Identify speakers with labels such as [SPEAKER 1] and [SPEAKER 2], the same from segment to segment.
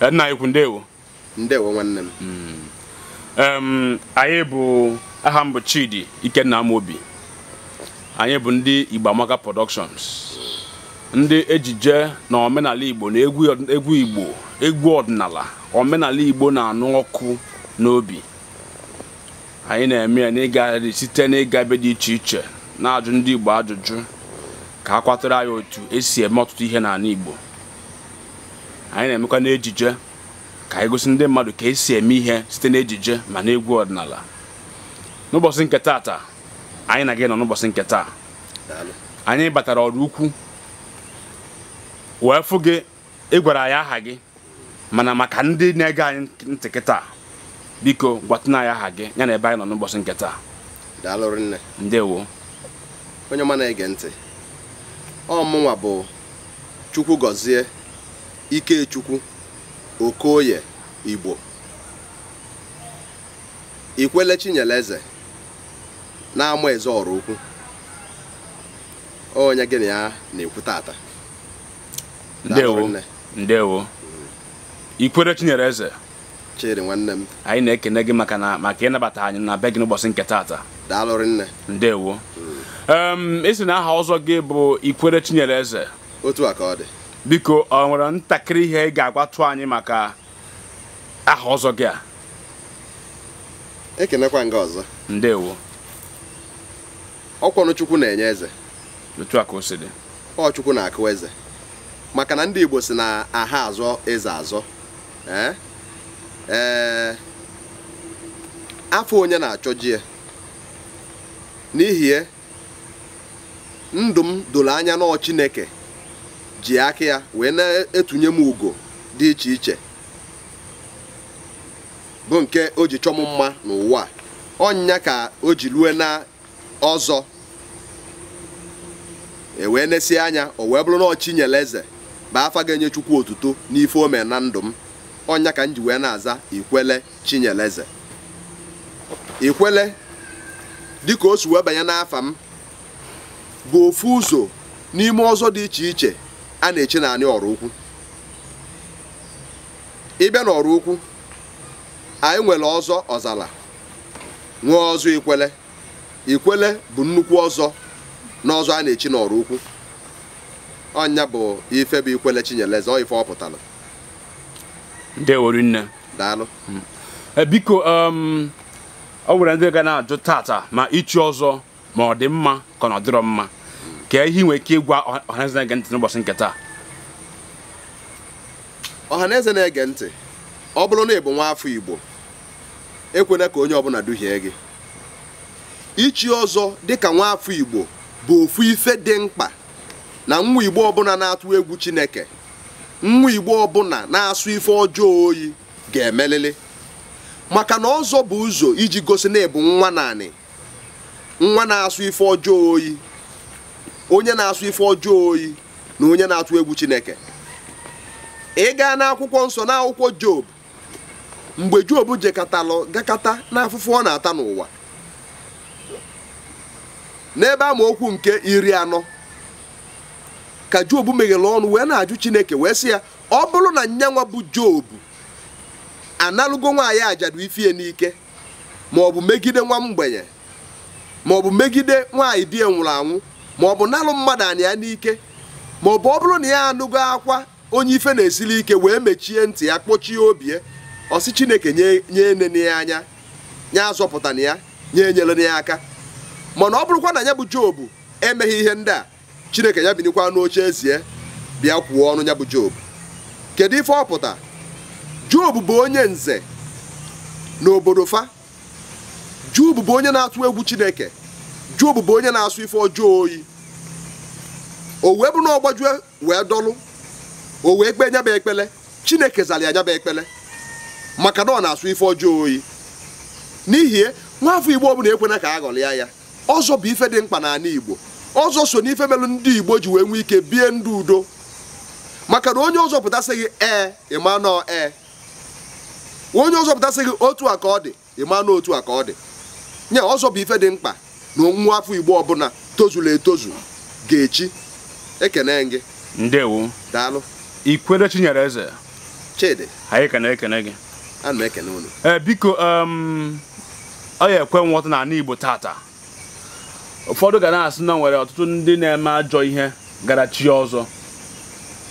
[SPEAKER 1] Eh, nna anyị ndewo ndewo nwanne m mm. anyị bụ aha m Chidi Ikenna Amobi anyị bụ ndị igbamaka Productions ndị ejije na omenala Igbo na egwu Igbo egwu ọdịnala omenala Igbo na-anụ ọkụ n'obi anyị na-eme ya n'ịgagharị site n'ịga ebe dị iche iche na-ajụ ndị Igbo ajụjụ ka a kwatara anyị otu esi eme ọtụtụ ihe n'ala Igbo anyị na-emekwa n'ejije ka anyị gosi ndị mmadụ ka esi eme ihe site n'ejije ma n'egwu egwu ọdịnala n'ụbọchị nke taata anyị na gị nọ n'ụbọchị nke taa anyị batara ọrụ ukwu wee fụ gị ị gwara anyị aha gị mana maka ndị na-ege anyị ntị kịta biko gwatụna anyị aha gị ya na ebe anyị nọ
[SPEAKER 2] n'ụbọchị nke taa ndewo onye ọma na-ege ntị ọ mụnwa bụ Chukwu gọzie Ikechukwu Okoye Igbo Ikwele Chinyeleze na-ama eze ọrụ ukwu onye gịnị ya na-ekwu tata
[SPEAKER 1] ndewo ndewo Ikwele Chinyeleze chiri nwanne m anyị na-ekene gị maka na maka ịnabata anyị na be gị n'ụbọchị nke tata daalụrị nne ndewo mm. si na aha ọzọ gị bụ Ikwele Chinyeleze otu a ka ọ dị biko ọ nwere ntakịrị ihe ị ga-agwatụ anyị maka aha ọzọ gị a
[SPEAKER 2] ekenekwa nga ọzọ ndewo ọkwọnụ chukwu na-enye eze otu a ka o si dị ọ chukwu na-akụ eze maka na ndị igbo si na aha azọ eze azọ ee afọ onye na-achọ jie ya n'ihi ndụ m doro anya n'ọ chineke ji aka ya wee na-etunye m ugo dị iche iche bụ nke o ji chọm mma n'ụwa ọnyịnya ka o ji lue na ọzọ ewee n'esi anya o wee bụrụ na ọchinyere eze bụ afa ga-enye chukwu otuto n'ife ome na ndụ m ọnya ka m ji wee na-aza ikwele chinyeleze ikwele dịka o si wee banye n'afa m bụ ofu ụzọ n'ime ọzọ dị iche iche a na-eche naanị ọrụ ukwu ịbịa n'ọrụ ukwu anyị nwere ọzọ ọzala nwee ọzọ ikwele ikwele bụ nnukwu ọzọ n'ọzọ a na-echi n'ọrụ ukwu ọnya bụ ife bụ ikwele chinyeleze ọ ife ọ pụtara
[SPEAKER 1] nne daalụ hmm. eh, biko ọ um, nwere ndị ga na-ajụ tata ma ichi ọzọ ma ọ dị mma ka ọ dịrọ mma ka ihe nwee ike ịgwa ọhaneze na-ege ntị n'ụbọchị nke taa
[SPEAKER 2] ọhaneze na-ege ntị ọ bụrụ na ị bụ nwa afọ igbo ekwela ka onye ọbụla duhie gị ichi ọzọ dịka nwa afọ igbo bụ ofu ife dị mkpa na nwa igbo ọbụla na-atụ egwu chineke nwa igbo ọbụla na-asụ ife ọjọọ oyi ga-emelili maka na ọzọ bụ ụzọ iji gosi na ịbụ nwa naanị nwa na-asụ ife ọjọọ oyi onye na-asụ ife ọjọọ oyi na onye na-atụ egwu chineke ị gaa n'akwụkwọ nsọ n'akwụkwọ job mgbe job jekatalụ gakata n'afụfụ ọ na-ata n'ụwa n'ebe amaokwu nke iri anọ ka job meghere ọnụ wee na-ajụ chineke wee sị ya ọ bụrụ na nwa bụ job analụgo nwaanyị ajadu ifie n'ike maọbụ megide nwa mgbenye maọbụ megide nwaanyị di nwụrụ anwụ ma ọ bụ nalụ mmadụ anị ya n'ike ma ọ bụ ọ bụrụ na ya anụgo akwa onye ife na-esili ike wee mechie ntị ya kpochie obi ọsị chineke nye nene ya anya azọpụta na ya nye na ya aka mana ọ bụrụkwa na ya bụ jobu emeghị ihe ndị a chineke ya binikwa n'oche ezie bịa kwuo ọnụ ya bụ jobu kedu ife ọpụta jobu bụ onye nze n'obodo fa jobu bụ onye na-atụ egwu chineke jobu bụ onye na-asụ ife ọjọọ oyi o wee na ọ wee dọlụ o wee kpee ekpele chineke zara ya nyaba ekpele maka na ọ na-asụ ife ọjọọ oyi n'ihi nwaafọ igbo ọbụla ekwena ka a ghọrịa ya ọzọ bụ ife dị mkpa n'ala igbo ọzọ so n'ife melụ ndị igbo ji wee nwee ike bie ndụ udo maka na onye ọzọ pụtasịghị ee ịma nọ ee onye ọzọ pụtasịghị otu a ka ọ dị ịma otu a ka ọ dị nya ọzọ bụ ife dị mkpa na nwa afọ igbo ọbụla tozuru etozu ga-echi ekene gị ndewo daalụ ikwere chinyere eze chidi
[SPEAKER 1] anyị ekene ekene gị
[SPEAKER 2] ana m ekene unu
[SPEAKER 1] ee biko ọ ya ekwe nghọta n'ala igbo tata ụfọdụ ga na-asị na nwere ọtụtụ ndị na-eme ajọ ihe gara chi ọzọ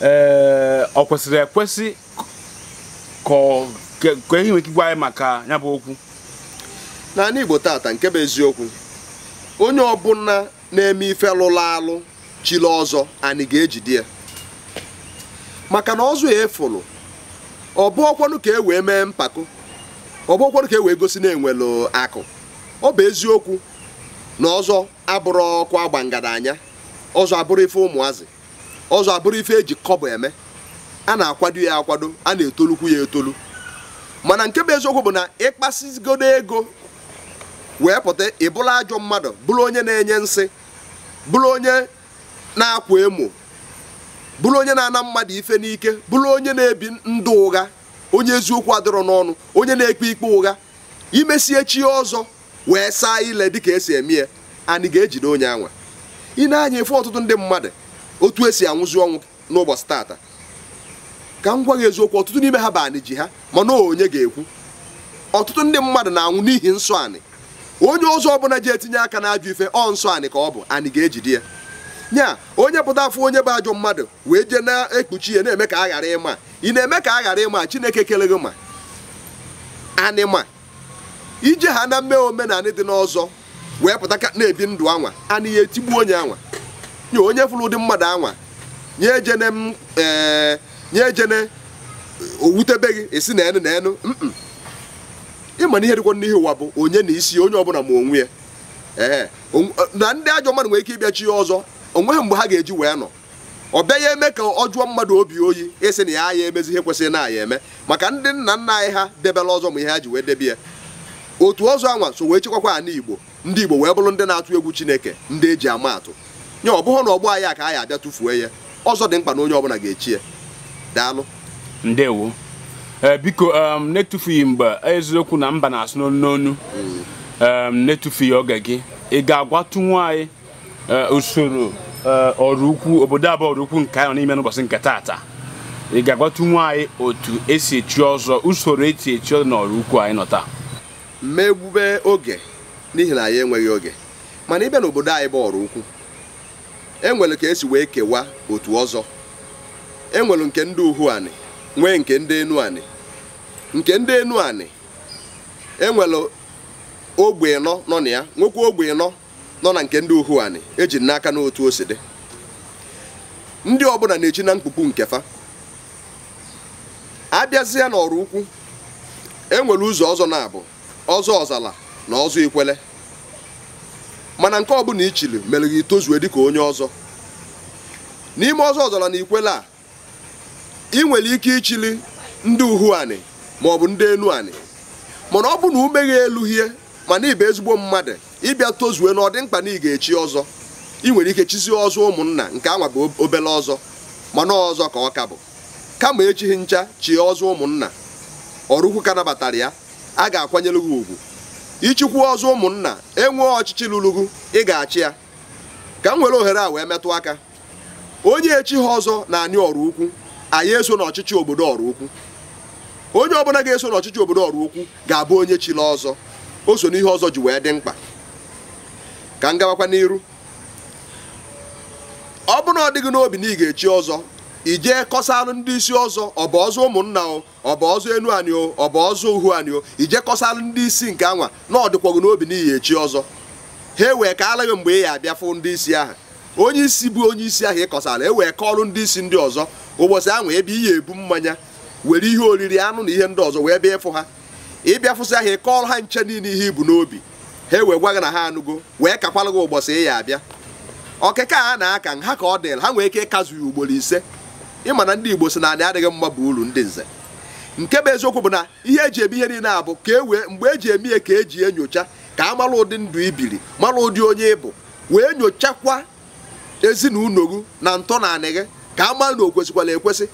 [SPEAKER 1] ee ọ kwesịrị ekwesị
[SPEAKER 2] ka ehi nwere ike gwa anyị maka ya bụ okwu n'ala igbo tata nke bụ eziokwu onye ọbụla na-eme ife lụrụ alụ chile ọzọ anyị ga-ejide ya maka na ọzọ ya efụlụ ọ bụ ka e wee mee mpako ọ bụ ka e wee gosi na enwelu akụ ọ bụ eziokwu na ọzọ abụrụ ọkụ agba ngadanya ọzọ abụrụ ife ụmụazị ọzọ abụrụ ife eji kọbọ eme a na-akwado ya akwado a na-etolukwu ya etolu mana nke bụ eziokwu bụ na ịkpasigodo ego wee pụta ịbụla ajọ mmadụ bụrụ onye na-enye nsị bụrụ onye na-akwa emo bụrụ onye na-ana mmadụ ife n'ike bụrụ onye na-ebi ndụ ụgha onye eziokwu adịrọ n'ọnụ onye na-ekpe ikpe ụgha imesie chi ọzọ wee saa ile dịka esi eme ya anyị ga-ejide onye anwa ị na-anya efe ọtụtụ ndị mmadụ otu esi anwụzi ọnwụ n'ụbọchị tata ka m gwa gị eziokwu ọtụtụ n'ime ha bụ anị ji ha mana onye ga-ekwu ọtụtụ ndị mmadụ na-anwụ n'ihi nsọ anị onye ọzọ ọbụla ji etinye aka n'ajọ ife ọ nsọ anị ka ọ bụ anị ga-ejide ya nya onye pụta afọ onye bụ ajọ mmadụ wee jee na-ekpuchi ya na-eme ka a ghara ịma ị na-eme ka a ghara ịma chineke kele gị ma anịma ije ha na mme omenanị dị n'ọzọ wee pụta ka na-ebi ndụ anwa anị ya etigbu onye anwa nye onye fụrụ ụdị mmadụ anwa nye ejene m ee nye ejene owutebe gị esi na enu na enu ịma na ihe dịkwa n'ihe ụwa bụ onye na isi onye ọbụla ma onwe ya ee na ndị ajọ mmadụ nwere ike ịbịachi ọzọ onweghị mgbe ha ga-eji wee nọ ọ bịaghị eme ka ọ jụọ mmadụ obi oyi ịsị e na ya ya emezi ihe kwesịrị na ya eme maka ndị nna nna anyị ha debela ọzọ ma ihe ha ji wee debe ya otu ọzọ anwa so wee chekwakwa ana igbo ndị igbo wee bụrụ ndị na-atụ egwu chineke ndị eji ama atụ nye ọ bụghị na ọgbọ anyị a ka anyị abịa tụfuo ya ọzọ dị mkpa na onye ọbụla ga-echi ya daalụ
[SPEAKER 1] ndewo eh, biko um, na-etufughị mgbe eziokwu na mba na-asụ n'onu n'onu mm. um, na-etufughị oge gị ị ga anyị eh, usoro Eh, ọrụ ukwu obodo abụọ ọrụ ukwu nke anyị n'ime n'ụbọchị nke taata ị ga-agwatunwu anyị otu esi echi ọzọ usoro eti echi ọzọ na ukwu anyị nọ taa
[SPEAKER 2] megbube oge n'ihi na anyị enweghị oge mana ịbịa n'obodo anyị bụ ọrụ ukwu enwere ka esi wee kewa otu ọzọ enwere nke ndị uhu anị nwee nke ndị enu anị nke ndị enu anị enwere ogbe nọ nọ na ya nwekwa ogbe nọ nọ na nke ndị uhuani anị eji n'aka n'otu o si dị ndị ọbụla na-echi na mkpukpu nke fa abịazịa n'ọrụ ukwu enwere ụzọ ọzọ na-abụ ọzọ ọzala na ọzọ ikwele mana nke ọbụla ichili mere gị tozue dịka onye ọzọ n'ime ọzọ ọzala na ikwele a ị nwere ike ichili ndị uhu anị maọbụ ndị elu anị mana ọ bụ na ume elu hie mana ibe ezigbo mmadụ ịbịa tozue na ọ dị mkpa na ị ga-echi ọzọ ị nwere ike chizie ọzọ ụmụnna nke anwa bụ obele ọzọ mana ọzọ ka ọ ka bụ kama echighị ncha chie ọzọ ụmụnna ọrụkwu ka nabatara ya a ga-akwanyere gị ugwu ịchịkwu ọzọ ụmụnna enwee ọchịchị lụrụgụ ị ga-achị ya ka m nwere ohere a wee metụ aka onye echi ha ọzọ na anyị ọrụ ukwu anyị eso n'ọchịchị obodo ọrụ ukwu onye ọbụla ga-eso n'ọchịchị obodo ọrụ ukwu ga-abụ onye chila ọzọ o so n'ihe ọzọ ji wee dị mkpa ka m gawakwa n'iru ọ bụrụ na ọ dịghị n'obi na ị ga-echi ọzọ ijee kọsalụ ndị isi ọzọ ọ bụ ọzọ ụmụnna o ọ bụ ọzọ enu anyị o ọ bụ ọzọ uhu anyị o ijee kọsalụ ndị isi nke anwa na ọ n'obi na iyi echi ọzọ ha ewee ka alaghị mgbe ị ya abịa fụ ndị isi ahụ onye isi bụ onye isi ahụ ịkọsala ewee kọọrụ ndị isi ndị ọzọ ụbọchị ahụ ebe ị ya ebu mmanya were ihe oriri anụ na ihe ndị ọzọ wee bịa ịfụ ha ịbịa fụsị ahụ ị kọọrọ ha nche niile ihe ibu n'obi ha wee gwa gị na ha anụgo wee kakwala gị ụbọchị ya abịa ọkịka a na-aka nha ka ọ dịrị ha nwee ike ịkazụ ya ugboro ise ịma na ndị Igbo si na anị adịghị mma bụ uru ndị nze nke bụ eziokwu bụ na ihe eji eme ihe niile abụ ka e wee mgbe eji eme ihe ka eji enyocha ka a mara ụdị ndụ ibiri mara ụdị onye ịbụ wee nyochakwa ezinụlọ gị na ntọ na anị gị ka a mara na o kwesịkwala ekwesị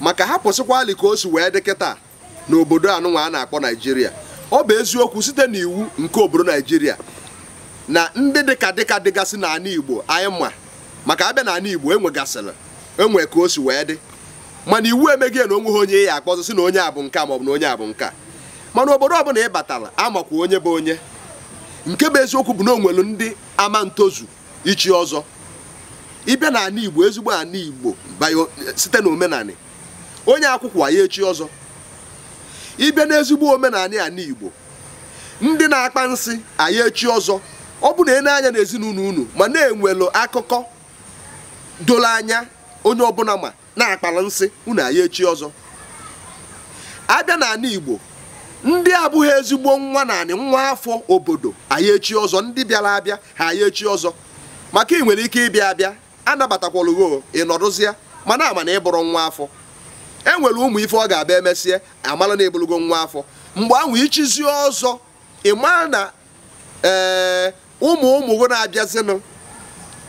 [SPEAKER 2] maka hapụsịkwalị ka o si wee dị kịta n'obodo anụnwa a na-akpọ Naijiria ọ bụ eziokwu site n'iwu nke obodo naijiria na ndị dịka dịka dịgasị n'ala igbo anyị ma maka abịa n'ala igbo enwegasịrị enwe ka o si wee dị mana iwu emeghị na onwe ha onye ya akpọzụ si na onye abụ nka maọbụ na onye abụ nka mana obodo ọbụla ị batara amakwa onye bụ onye nke bụ eziokwu bụ na onwelu ndị ama ntozu ichi ọzọ ịbịa n'ala igbo ezigbo ala igbo site na omenala onye akwụkwọ ya echi ọzọ ịbịa n'ezigbo omenala ala Igbo ndị na-akpa nsị anyị echi ọzọ ọ bụ na ene anya n'ezinụlọ unu ma na-enwelu akụkọ doro anya onye ọbụla ma na-akpara nsị unu anyị echi ọzọ abịa n'ala Igbo ndị abụghị ezigbo nwa nani, nwa afọ obodo anyị echi ọzọ ndị bịara abịa ha anyị echi ọzọ maka ị nwere ike ịbịa abịa anabatakwalụgo ma mana ama na ịbụrụ nwa afọ e nwere ụmụ ife ọ ga-abịa emesịa amala na ebulugo nwa afọ mgbe ahụ ichizi ọzọ ịma na ee eh, ụmụ ụmụ gị na-abịazinụ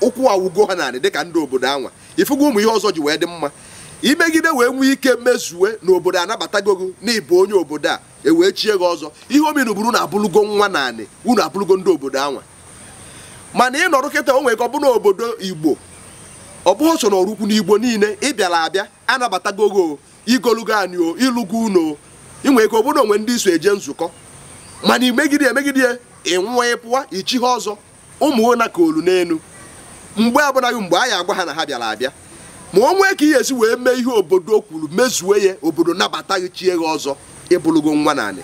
[SPEAKER 2] ụkwụ awugo ha narị dịka ndị obodo anwa ifugo ụmụ ihe ọzọ ji wee dị mma imegide wee nwee ike mmezuwe n'obodo anabatago gị n'ịbụ onye obodo a e wee chie gị ọzọ ihe ominu buru na abụlugo nwa naanị unu abụlugo ndị obodo anwa mana ịnọrọ kịta o nwere ka ọ bụ obodo igbo ọ bụghị so na ọrụkwu n'igbo niile ị bịara abịa anabatagogo igolugo anyị o ịlụgo uno inwe ike obodo onwe ndị iso eje nzukọ mana imegide emegide ịnwụọ ịpụwa ichi ha ọzọ ụmụona ka olu n'elu mgbe abụnaghị mgbe anyị agwa ha na ha bịara abịa ma o nwee ka ihe esi wee mee ihe obodo kwuru mezuo ya obodo nabataghị chie ha ọzọ ịbụlụgo nwa naanị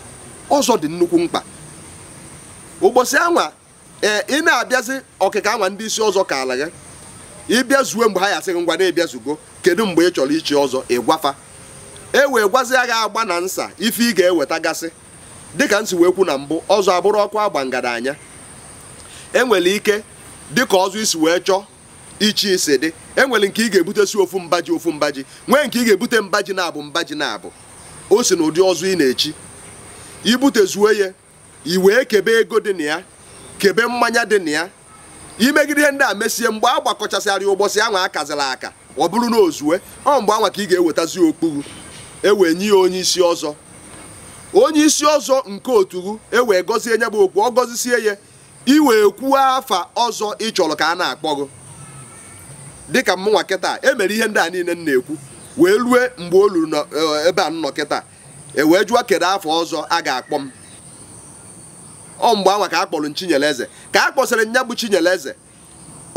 [SPEAKER 2] ọzọ dị nnukwu mkpa ụbọchị anwa ee ị na-abịazi ọkịka anwa ndị isi ọzọ ka ala gị ịbịa zuo mgbe ha yasịghị ngwa na-ebịa zugo kedu mgbe ị chọrọ ichi ọzọ ịgwafa e wee gwazia gị agba na nsa ife ị ga-eweta gasị dịka nsi wee kwu na mbụ ọzọ abụrụ ọkụ agba ngadanya enwere ike dịka ọzọ isi wee chọọ ichi isi dị enwere nke ị ga-ebute si ofu mbaji ofu mbaji nwee nke ị ga-ebute mbaji na-abụ mbaji na-abụ o si na ụdị ọzọ ị na-echi ibute zuo ya i wee kebe ego dị na ya kebe mmanya dị na ya imegide ndị a mesie mgbe a gbakọchasịrị ụbọchị anwa akazila aka ọ bụrụ na ozue ọ mgbe anwa ka ị ga-ewetazi okpuru ewee nye ya onye isi ọzọ onye isi ọzọ nke otughu ewee gọzie nye bụ okwu ọ gọzisie ya iwee kwuo afa ọzọ ịchọrọ chọrọ ka a na-akpọ gị dịka mmụnwa kịta emere ihe ndị a niile m na-ekwu wee rue mgbe o luru e, ebe a nọ kịta ewee jụọ kedu afọ ọzọ a ga-akpọ m ọ mgbe anwa ka a kpọrọ Chinyereze ka a kpọsịrị nya bụ Chinyereze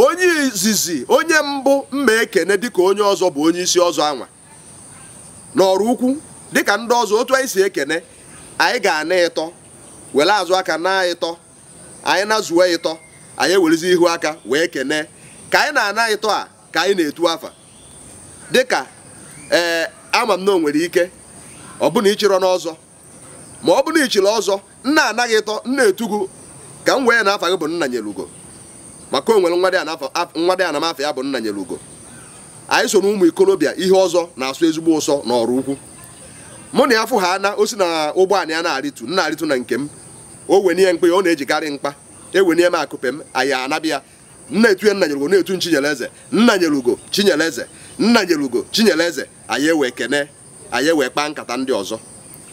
[SPEAKER 2] onye izizi onye mbụ mma ekene dịka onye ọzọ bụ onye isi ọzọ anwa n'ọrụ ukwu dịka ndị ọzọ otu anyị si ekene anyị ga-ana ịtọ were azụ aka na ịtọ anyị na-azụwe ịtọ anyị ewerezi ihu aka wee kene ka anyị na-ana ịtọ a ka anyị na-etu afa dịka ee eh, ama m na o nwere ike ọ bụna ịchịrọ n'ọzọ ma ọ bụrụ na ichiri ọzọ nna anaghị ịtọ nna etugu ka m wee na-afa gị bụ nna nyere ugo maka onwere nwa dị anamafọ ya bụ nna nyere ugo anyị so na ụmụ ikorobịa ihe ọzọ na-asụ ezigbo ụsọ na ọrụ ukwu mụ na ya fụ ha na o si na ụgbọala ya na-arịtu nna arịtu na nke m o wenye mkpa ya ọ na-ejikarị mkpa ewenye m akụpe m anyị anabịa nna etuye nna nyere ugo na-etu chinyere eze nna nyere ugo chinyere eze nna nyere ugo chinyere eze anyị ewee kene anyị ewee kpaa nkata ndị ọzọ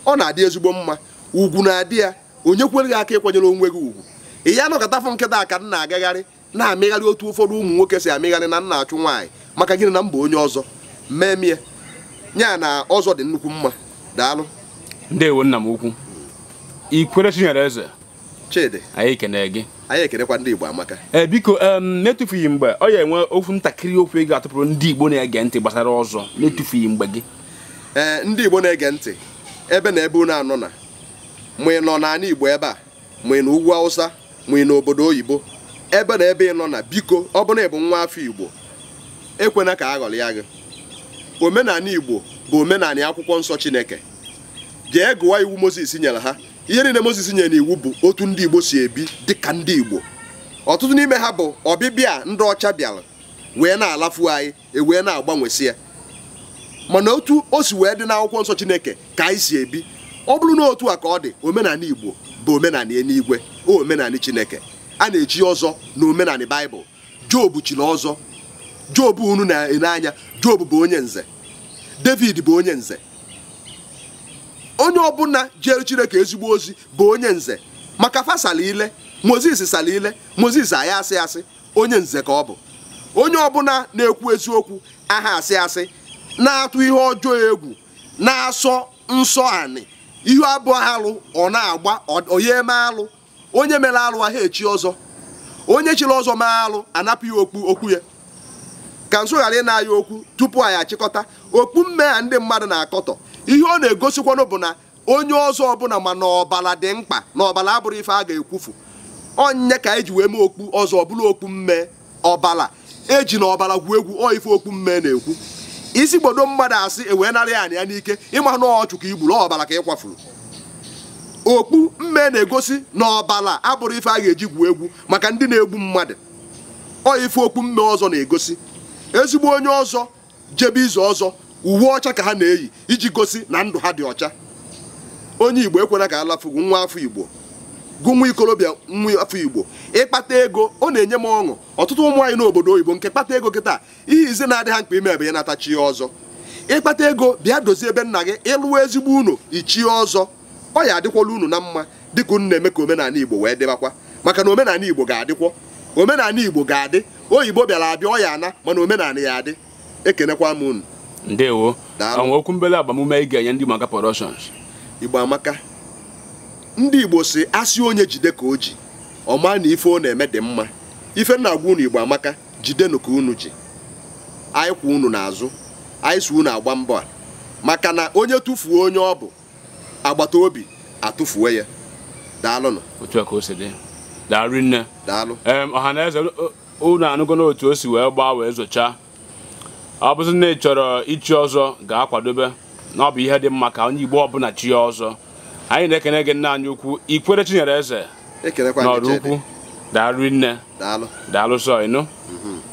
[SPEAKER 2] ọ na-adị ezigbo mma ugwu na-adị ya onye kwere gị aka ịkwanyere onwe gị ugwu ị ya nọkọtafụ nkịta ka m na-agagharị na-amịgharị otu ụfọdụ ụmụ nwoke si amịgharị na nna achụ nwaanyị maka gịnị na mba onye ọzọ mee nya na ọzọ dị nnukwu mma daalụ
[SPEAKER 1] ndewo nna m ukwu ikwere chinyere eze chidi anyị ekene gị
[SPEAKER 2] anyị ekenekwa ndị igbo amaka
[SPEAKER 1] ee eh, biko na-etufughị mgbe ọ ya
[SPEAKER 2] enwe okwu ntakịrị okwu ị e ga-atụpụrụ ndị igbo na-ege ntị gbasara ọzọ na-etufughị mgbe gị eh, ndị igbo na-ege ntị ebe na ebe unu anọ na ma nọ n'ala Igbo ebe a ma na ugwu Hausa ma na obodo oyibo ebe na ebe ị nọ na biko ọ bụrụ ịbụ nwa afọ Igbo ekwena ka a ya gị omenala Igbo bụ omenala akwụkwọ nsọ Chineke jee gụwa iwu Mozis nyere ha ihe niile Mozis nyere n'iwu bụ otu ndị Igbo si ebi dịka ndị Igbo ọtụtụ n'ime ha bụ ọbịbịa ndị ọcha bịara wee na-alafu anyị ewee na-agbanwesị ya mana otu o si wee dị n'akwụkwọ nsọ Chineke ka anyị si ebi ọ bụrụ na otu a ka ọ dị omenala Igbo bụ omenala eluigwe omenala Chineke a na-eji ọzọ na omenala Baịbụl Job chiri ọzọ Job unu na-ele anya Job bụ onye nze David bụ onye nze onye ọbụla jere Chineke ezigbo ozi bụ onye nze maka fasala ile Moses sala ile Moses aya asị asị onye nze ka ọ bụ onye ọbụla na-ekwu eziokwu aha asị asị na-atụ ihe ọjọọ egwu na-asọ nsọ anị ihu abụọ ha alụ ọ na-agba onye eme alụ onye mere alụ ahụ echi ọzọ onye chiri ọzọ mee alụ anapụ ya okpu okwu ya ka nso ghara ị na-aya okwu tupu anyị achịkọta okpu a ndị mmadụ na-akọtọ ihe ọ na-egosikwanụ bụ na onye ọzọ ọbụla ma n'ọbara ọbala dị mkpa na ọbala abụrụ ife a ga-ekwufu onye ka eji wee mee okpu ọzọ ọbụla okpu mme ọbala eji na ọbala gwuo egwu ọ ife okpu mme na-ekwu isi gbodo mmadụ asị ewee narị anyị ya n'ike ịma na ọchụ igburu ọbara ka ị kwafuru okpu mme na-egosi na ọbara abụrụ ife a ga-eji gwuo egwu maka ndị na-egbu mmadụ ọ ife okpu mme ọzọ na-egosi ezigbo onye ọzọ jebe izu ọzọ uwe ọcha ka ha na-eyi iji gosi na ndụ ha dị ọcha onye igbo ekwena ka a nwa afọ igbo gụ nwa ikorobịa nwa afọ igbo ịkpata ego ọ na-enye m ọṅụ ọtụtụ ụmụ anyị n'obodo oyibo nke kpata ego taa ihe ize na-adị ha mkpa ime ebe ya natachi ọzọ ịkpata ego bịa dozie ebe nna gị ịlụwa ezigbo unu ichie ọzọ ọ ya adịkwala unu na mma dịka unu na-eme ka omenala igbo wee dịbakwa maka na omenala igbo ga-adịkwọ omenala igbo ga-adị oyibo bịara abịa ọya ana mana omenala ya adị ekenekwa m unu ndewo okwu mbele agbamume ị ga-enye ndị maka igbo amaka ndị igbo si asị onye jide ka o ji ọma na ife ọ na-eme dị mma ife nna agwa unu igbo amaka jidenụ ka unu ji anyị kwa unu n'azụ anyị si unu agba mbọ a maka na onye tụfuo onye ọ bụ agbata obi atụfuo ya daalụnụ
[SPEAKER 1] otu a ka o si dị daalụ nne daalụ ọha na eze unu anụgo otu o si wee gbaa wee zochaa ọ bụzi na chọrọ ichi ọzọ ga-akwadobe na ọ bụ ihe dị mma ka onye igbo ọbụla chi ya ọzọ anyị na-ekene gị nna anyị ukwu ikwere Chinyere Eze n'ọrụ ukwu daalụ nne daalụ sọ ịnụ mhm.